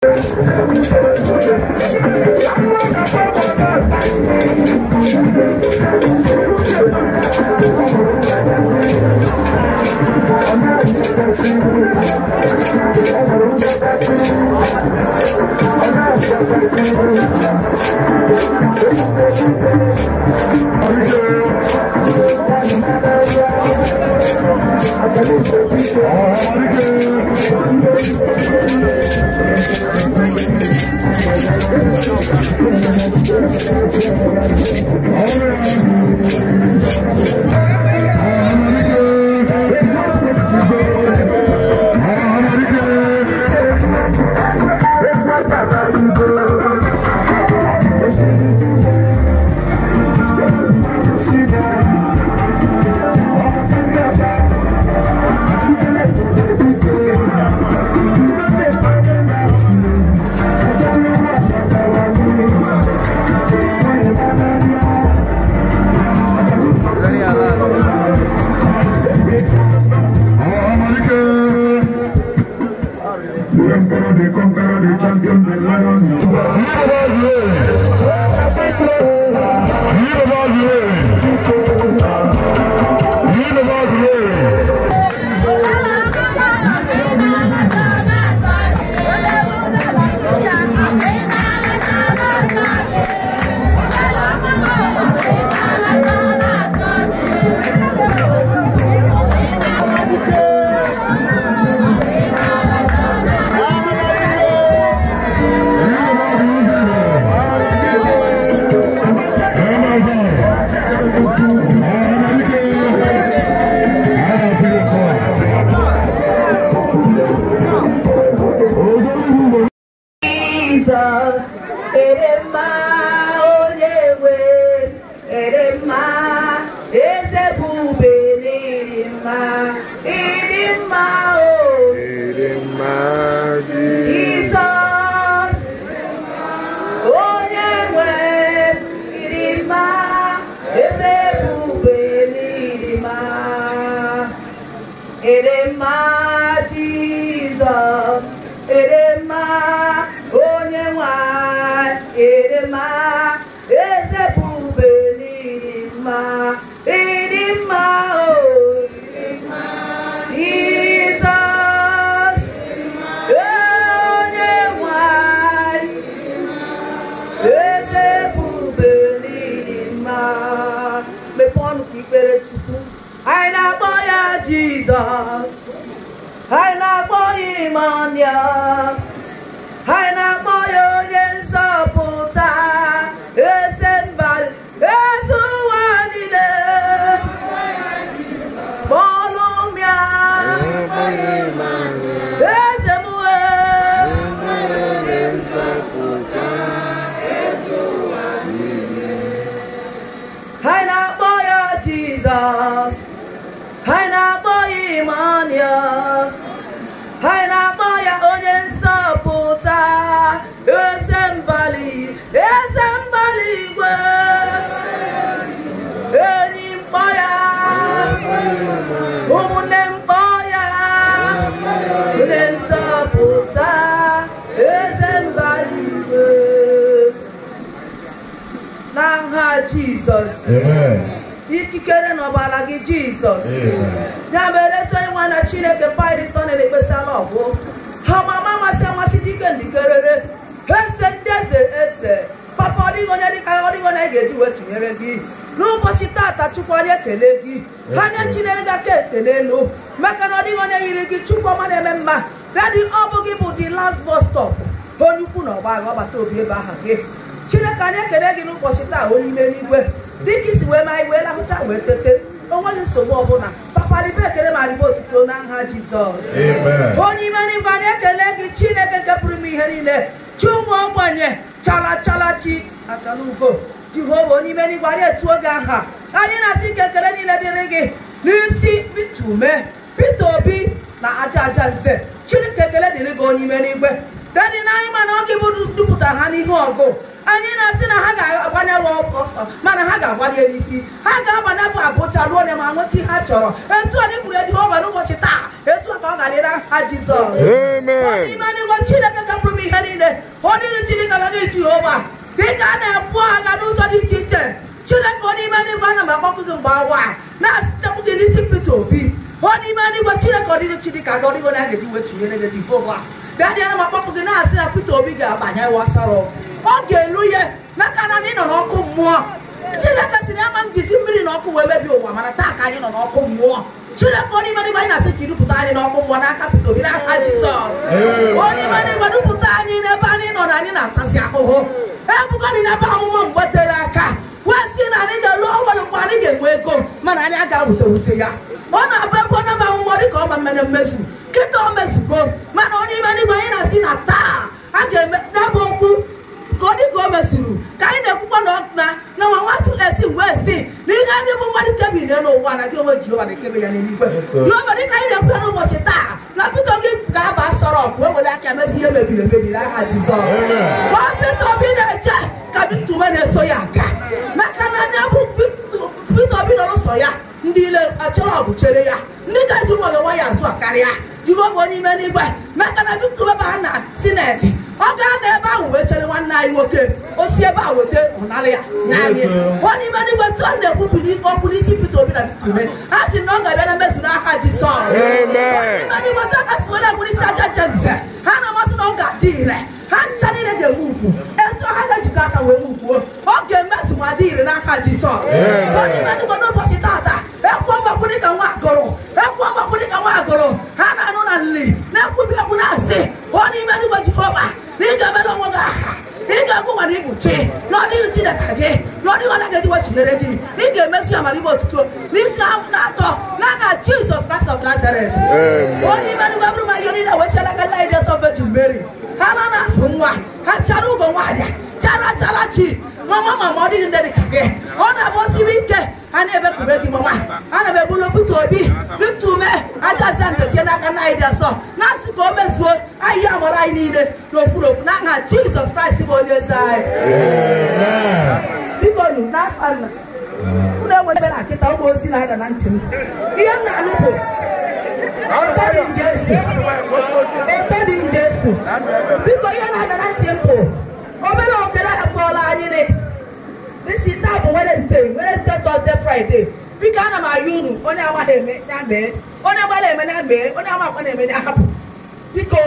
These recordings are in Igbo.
Oh, my God. Oh, yeah. Jesus. I love for yeah. jizọs ikikere n'ọbara gị jizọs ya mere ezi nwa na chineke paịdịsọ na-ekpesala ọgwụ ha mama amasị amasị dike ndikerere eze ndị eze eze papa ọdịghị onye dịka ọdịghị onye ga-eji wee tụnyere gị n'ụbọchị tata chukwu onye kele gị ha nye chinere gị aka ekele elu maka na ọdịghị onye yiri gị chukwu ọma na-eme mma dadị ọ bụ gị bụ the last bus stop onye ukwu na ọgba aghọbata obi ebe aha gị chineke anyị ekele gị n'ụbọchị taa onye ime n'igwe dịka isi wee ma iwe lahụcha wee tete onweghị nsogbu ọbụla paparibe ekele ma ribe otuto na nha jizọs onye ime n'igwe anyị ekele gị chineke nke pụrụ ihe niile chi ụmụ ogbenye chala chala chi achala ugo jehova onye ime n'igwe anyị etuo gị aha anyị na-asị ike ekele niile dịrị gị n'isi pita ume pita obi na aja aja nze chineke ekele dịrị gị onye ime n'igwe dadi na anyị mana oge bụ dupụtara ha n'ihu ọgụ anyị na-asị na ha ga-agbanyelụ ọsọ mana ha ga-agbanye n'isi ha ga-agbanapụ abụcha ruo ole ma nweta ihe ha chọrọ etu anyị kwuru ejiho nwere ụbọchị taa etu ka ọ ga-adịra ha jizọs n'ime n'igwe chineke gapụrụ m ihe niile ọ dịghị chineke gaghị jehova dịka a na-ebu agha n'ụzọ dị iche iche chineke ọ n'ime n'igwe ana m akpọkụ gị mgbe awa na-asịtepụ gị n'isi pete obi ọ n'ime n'igwe chineke ọ dịghị chineke aga ọdịgo na a ga-eji wetunyere gị jehova daniel ma kpọpụ gị na-asị na peter obi ga-abanye wasara ọ ga-elu ihe n'aka na ị nọ n'ọkụ mmụọ chineke siri ama njizi mmiri na ọkụ wee mebie ụwa mana taa ka anyị nọ n'ọkụ mmụọ chineke onye mere ibe anyị na-asị ka ịdupụta anyị n'ọkụ mmụọ n'aka peter obi n'aka jizọs onye mere ibe dupụta anyị n'ebe anyị nọ na anyị na-atasị ahụhụ ebugani n'ebe amụma mgbe tere aka wee si na anyị ga-elu ọnwere mgbe anyị ga-enwe ego mana anyị agaghị wuterute ya ọ na-abụ ebe onye amụmọ dị ka ọba mere mmezu nkịta o mezugo mana onye ime n'igwe anyị na-asị na taa a ga-eme dabụ okwu ka ọ dịka o mezuru ka anyị na-ekwukwa na ọna na nwa nwatụ eti wee si na ihe ndị bụ mmadụ kebiri n'ụwa na gị onwe Jehova na-ekebe ya n'eluigwe Jehova dịka anyị na-ekwu ya n'ụbọchị taa na pito gị ga-aba sọrọ ọkụ ewere aka mezi ihe e mebiri emebi n'aha Jizọs ọ pito obi na-eche ka bitume na-eso ya aga maka na ndị bụ pito obi nọ n'ụsọ ya ndị ile achọrọ ọgụ chere ya ndị ga-eji nwayọ nwayọ azụ karịa gọvanọ onye ime n'igwe chineke gị n'ọrụ ihe ọ gị ị ga-emefu ya mara otuto n'isi na-atọ n'aha Jizọs Kraịst of Nazareth onye ime bụrụ ma ihe aka nna of Virgin ha na na-azụ nwa ha chara ugo nwaanyị chara chara chi mama mama ọ nne dị ka gị ọ na-abụ osiri ike a na-ebekube gị mama ana m ebulu pụta obi ume n'aka nna na-asị ka o mezuo ahịa amara anyị niile n'ofuru ofu n'aha Jizọs Kraịst bụ onye eze anyị biko nu n'afọ a ụlọ enwere ebe na nkịta ụmụ ozi na-ada na ntị m ihe m na-alụ bụ etedi nje etedi biko ihe na-ada na ntị m bụ obere okere afọla anyị ne dịsi taa bụ Wednesday Wednesday Thursday Friday biko ana m ayụ unu onye amaghị eme ya mee onye gbara eme ya mee onye amakwa na-eme ya hapụ biko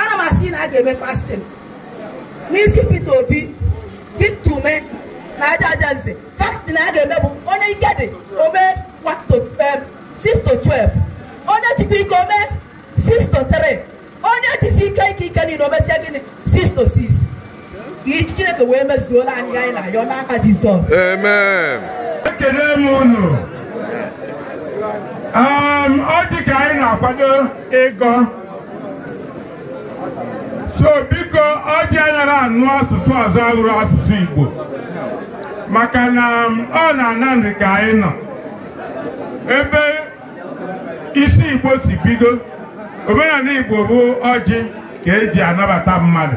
ana m asị na a ga-eme fastin n'isi Pita Obi Vitume na aja aja nze fastin a ga-eme bụ onye ike dị omee 6 12 onye jikwa ike omee 6 3 onye jizi ike ike ike niile omesie gịnị 6 6 iji Chineke wee mezuola anyị anyị na ya n'aka Jizọs amen ekele m unu um, ọ dị ka anyị na-akwado ịgọ so biko ọjị anyara anụ asụsụ ọzọ arụrụ asụsụ Igbo maka na um, ọ na nri ka anyị nọ ebe isi Igbo si bido omenala Igbo bụ ọjị ka eji anabata mmadụ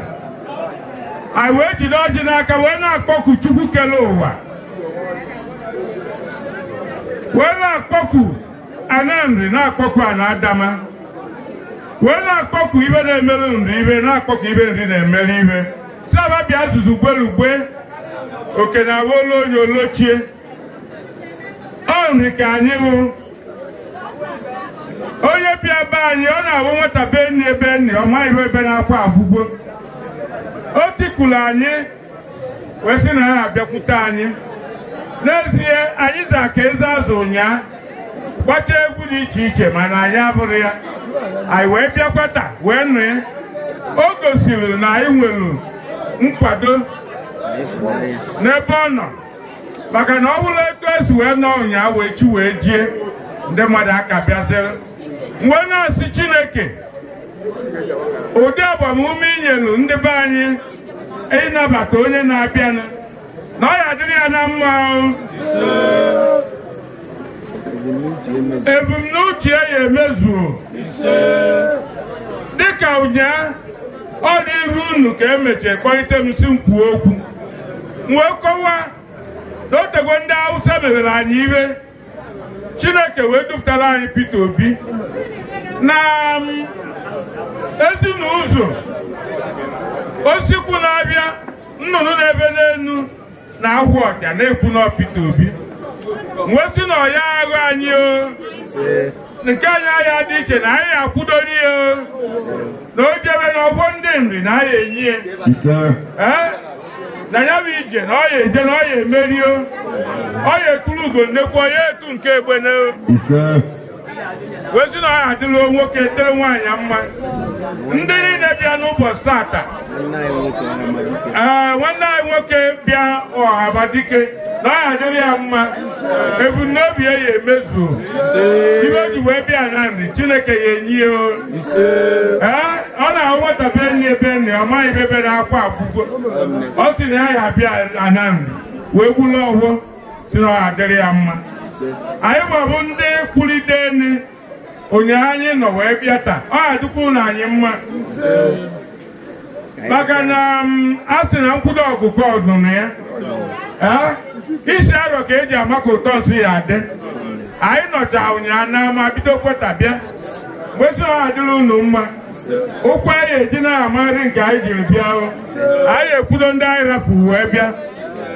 anyị wee jide ọjị n'aka wee na-akpọku Chukwu kele ụwa wee na-akpọku Anambra na-akpọku Anadama wee na-akpọku ibe na-emere ndụ ibe na-akpọku ibe nri na-emere ibe saba azụzụ gwelugwe oke na awolu onye olochie ọ ka anyị bụ onye bịa be anyị ọ na-awụ nweta be nri ebe nri ọ maghị ebe na-akwa abụgbo. o tikulu anyị wee sị na na abịakwute anyị n'ezie anyị za ka eze azụ ụnyaa gbata egwu dị iche iche mana anyị abụrụ ya anyị wee bịakwata wee nụ ya o gosiri na anyị nwere nkwado n'ebe ọ nọ maka na ọ bụrụ etu esi wee nọ ụnyaahụ echi wee jie ndị mmadụ aka bịazere wee na-asị Chineke ụdị agbamume inyelu ndị be anyị ịnabata onye na-abịanụ na ọ ya adịrị ya na mma ahụ ebumnuche ya emezuo dịka ụnyaahụ ọ dị iru unu ka emechaa kpọlite m si okwu wee kọwa na otegwe ndị Hausa mebere anyị iwe Chineke wee dupụtara anyị Peter Obi na um, ezinụzọ osikwu na-abịa nnụnụ na-ebe na ahụ ọja na-ekwu na Peter Obi nwesị na ọya ahụ anyị o nke anyị ahịa dị iche na anyị akwụdori ya na o na ọgwọ ndị nri na anyị enyi e. ya na ya bụ ije na ọya eje na ọya emerio ọya eturu ugo nnekwu ọya etu nke egbe wezi na ọ adịla nwoke tere nwaanyị mma ndị niile bịa n'ụbọchị tata ee nwanne anyị nwoke bịa ọhaba dike na ọ adịrị ya mma ebumnobi ya ya emezu iwe ji wee bịa na nri chineke ya enyi ee ọ na-ahụ nwata be nne be ọ maghị ebe bere akwa akwụkwọ ọ sị na ya ya bịa na nri wee gbula ọhụụ si na ọha adịrị ya mma anyị nwabụ ndị ụnyaahụ anyị nọ wee bịa taa ọ adịkwa ụlọ anyị mma maka na um, a sị na nkwụdo ọgụgụ ọdụnụ ya isi arọ ka eji ama ụtọ nsị ya adị anyị nọcha ụnyaahụ n'ama bido kweta bịa mgbesi ọ adịla unu mma ụkwụ anyị eji na-amarị nke anyị jiri bịa anyị ekwudo ndị anyị rafu wee bịa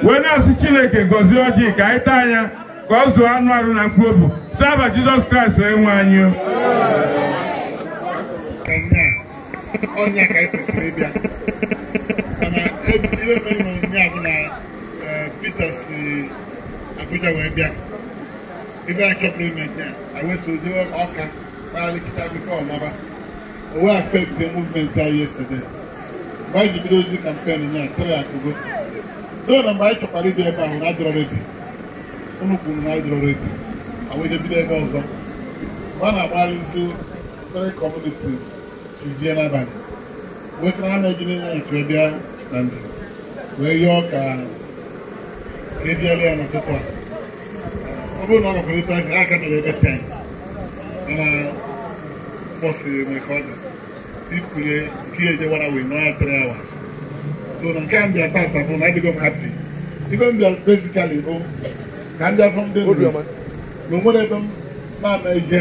wee na-asị Chineke gọzie ọjị ka anyị taa anya ka ọ zụọ anụ arụ na mkpobu saba jizọs kraịst wee nwe anyị Abuja wee bịa ibe a chọpụrụ ime nke a wetuzi ọka kpalịkịta bifo ọmaba owe affect movement a yesterday mgbe anyị ji bido ozi kampen nya tiri akụgo so na mgbe anyị chọkwara ịbịa ebe ahụ na adọrọ redio ụmụ kwuru na anyị jụrụ a bido ebe ọzọ a na-agbalịzi isi kọmunitis chijie n'abalị wee sị na ha na ya chụọ bịa na njem wee yọọ ka ebiala ya n'ụtụtụ a ọ bụrụ na ọ gakwere aka aka mere ebe 10 mana ya a na adịghị m ka ndị afọ ndị na o nwere ebe m na-ana ihe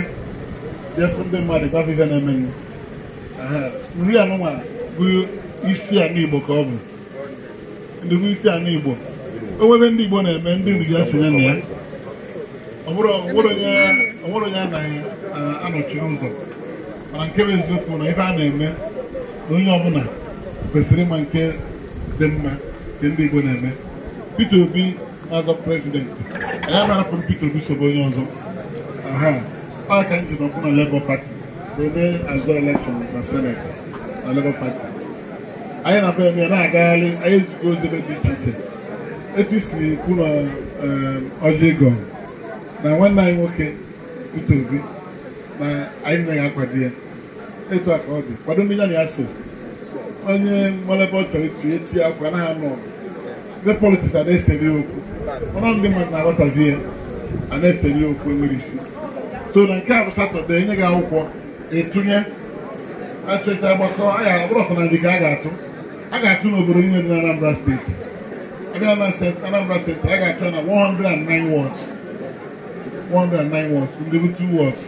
dị efu ndị mmadụ gafe ihe na-eme nri anụnwa bụ isi ana Igbo ka ọ bụ ndị isi ana Igbo onwebe ndị Igbo na-eme ndị nri ya sonye na ya ọ bụrụ onye a na-anọchi ụzọ mana nke bụ eziokwu na ife a na-eme na onye ọbụla kwesịrị ịma nke dị mma nke ndị Igbo na-eme Peter Obi n'azọ prezidenti anyị amarapụrụ Peter Obi sobe onye ọzọ aha ka nji nọkwụ na Labour Party wee azụ elekshọn na seneti na Labour Party anyị na uh, uh, be ya na-agagharị anyị ezigbo ozi dị iche iche etu si kwu na ọjị ego na nwanne anyị nwoke Peter Obi na anyị naghị akwado ya etu a ka ọ dị kwado ndị ya na ya so onye mmalebe ọ etu eti akwa anaghị anọ ọgụ ndị politiks a na-esere okwu ọnụ ndị mmadụ na-aghọtazi ya a na-esere okwu enwere isi so na nke a bụ satọde enye gị akwụkwọ etunye achụcha agbakọ aya bụrụ ọsọ na ndị ka a ga-atụ a ga-atụ n'obodo niile dị na Anambra steeti abịa na Anambra steeti a ga-atụ na 109 wọds 109 wọds ndị bụ 2 wọds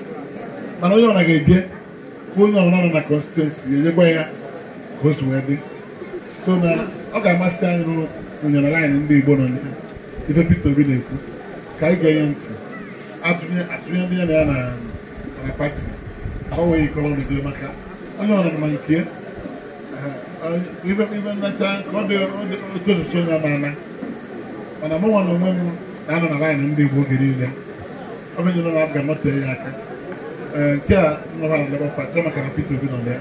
mana onye ọna ga-eje ka onye ọbụla nọ na constituency ga-ejekwa ya ka o si wee dị so na ọ ga-amasị anyị n'okwu onyere laịnị ndị Igbo nọ ife Peter Obi na-ekwu ka anyị ga-enye ntị atụnye ndị ya na ya na pati ka ọ nwee ikọrọ n'udo maka onye nke eh, eh, ibe ọ dị otu osisi onye amaala mana mụ nwa na onwe m na-anọ na laịnị ndị Igbo oge niile ọ bụ nyere ya aka eh, nke a nọra na Labour Party maka na Peter Obi nọ na ya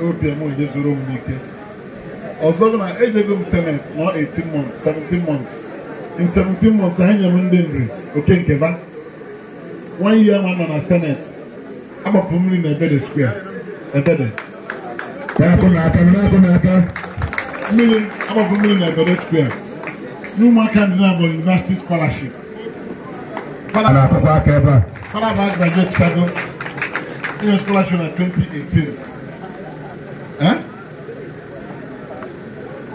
ewepịa m onye zuru m n'ike. ọsọgbọn na ejego m senate nọ 18 months 17 months in 17 months anyị nyere m ndị nri oke nkeba one year ma nọ na senate agbapụ mmiri na ebede square ebede na-apụ na-ata na-apụ na-ata mmiri agbapụ mmiri na ebede square n'ụmụaka ndị na-abụ university scholarship fada na-apụkwa aka ebe a fada bụ graduate Chicago English scholarship in 2018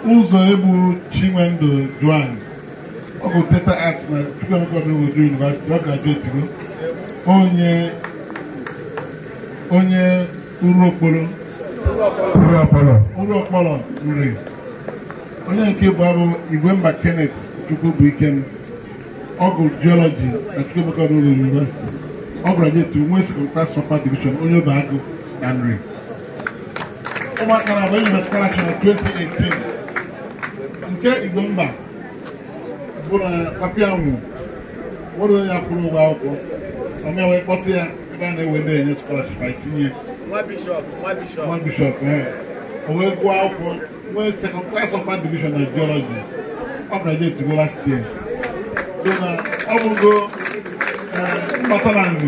ụzọ egbu Chinwendu Duane ọ bụ theater arts na Chukwuemeka Odogwu University ọ graduate go onye onye urukporo urukporo nri onye nke bụ abụ Igwemba Kenneth Chukwubuikem ọ bụ geology na Chukwuemeka Odogwu University ọ graduate nwe second class upper division onye obe agụ na nri ụmụaka na-abụ enyi metụtara 2018 nke igbo mba bụ na papịa nwụ nwere ụgwọ akwụkwọ anyị wee kpọta ya ebe a na-ewe ndị enye skolaship anyị tinye nwa bishọp e, o wee gụọ akwụkwọ nwee sekọnd klas ọfa divishọn na jiọlọji ọ bụla je etigbo last year so na ọ bụgo e, mgbata na nri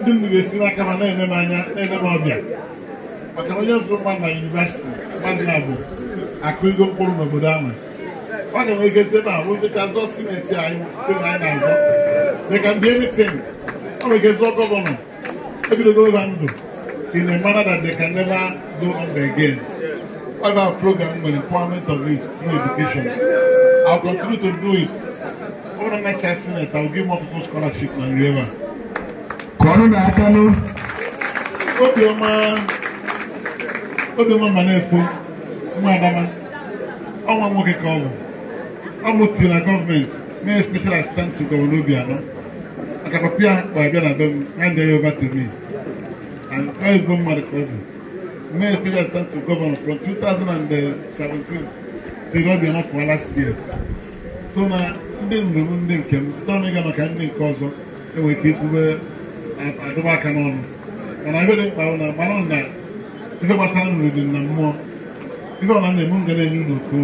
ndị nri ga-esi n'aka ma na-enye m anya na-enye m ọbịa maka onye zụrụ mmadụ na yunivasịtị mmadụ ya abụ akụ igo mkpụrụ n'obodo ahụ ọ na-enwegozi ebe ahụ dịka zọ sineti anyị si na anyị na anything dịka ndị emitin ọ nwegozọ gọvanọ ebidogo ịba ndụ in a manner that they can never go under again. Our program the empowerment of it through education. I'll continue to do it. Over the next Senate, I'll give more people scholarship than you ever. Corona Akano. Obioma. Obioma Manefu. Madama. Ọnwa nwoke ka ọ bụ. ọmụtiri na gọọmenti mee special assistant to Governor Obiano maka abịa na be m hand over to me and mmadụ ka ọ bụ mee special assistant to Governor from 2017 till Obiano for last year so na ndị ndụ m ndị nke m tọrọ maka ndị nke ọzọ enwere ike ikwube aka n'ọnụ dị mkpa na na na mmụọ ife na-eme ga na-enye unu oke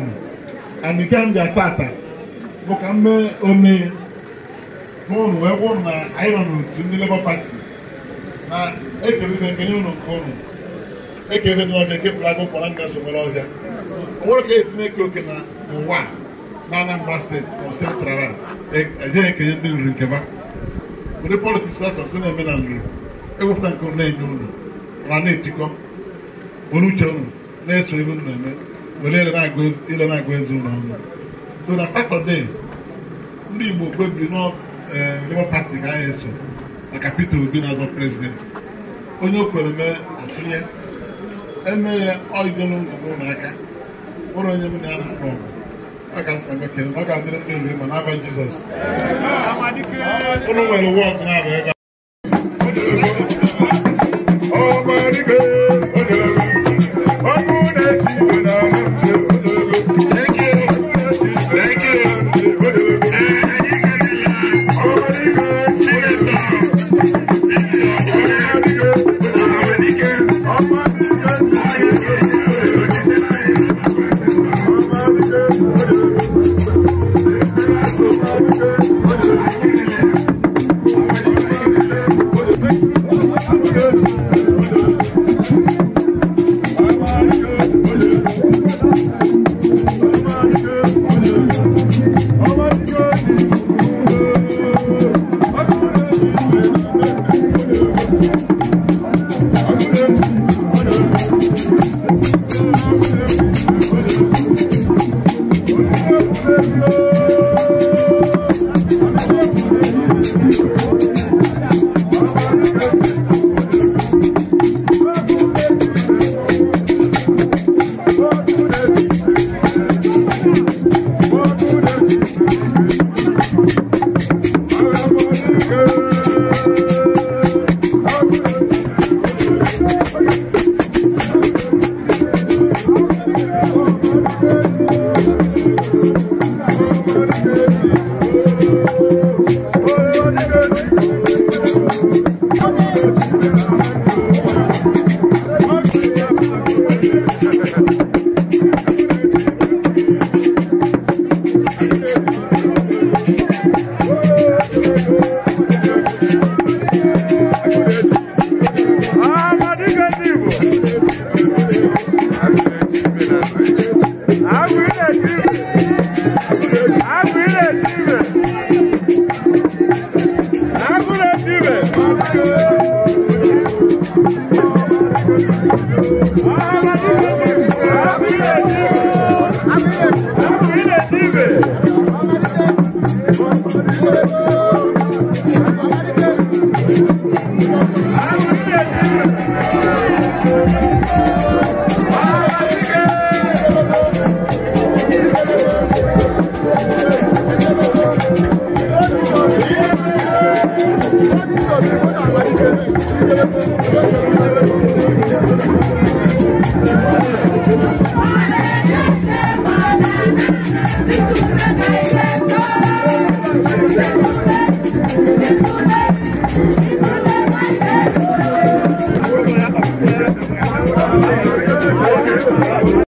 and nke m bịa tata bụ ka m mee unu wee gwụ na anyị nọ n'otu ndị Labour Party na ekeribe nke nye ụnụ e nke ụnụ ekeribe n'ọbịa nke pụrụ agụ kpọrọ nga sobere ọhịa onwere ka etinye eke oke na ụwa na Anambra steeti ọstetrara ejeghị e ekenye ndị nri nke ba ụdị politiks asọsị na-eme na nri ewepụta nke ụnụ na-enye ụnụ na na-etikọ olu uche ụnụ na-eso ebe ụnụ na-eme were ile na-agụ ezi ụlọ ọnụ so na satọde ndị Igbo kpebiri na eh, Labour Party ga anyị eso maka Peter Obi na-azọ prezidenti onye o kwere mee atụnye eme ya oidolu ụlọ aka ụlọ onye m na-ana akpọ ọgụ ọ ga-adịrị ndị ori ma n'aba Jizọs ụlọ nwere wọd na-aba ebe ọmọdé. Thank you.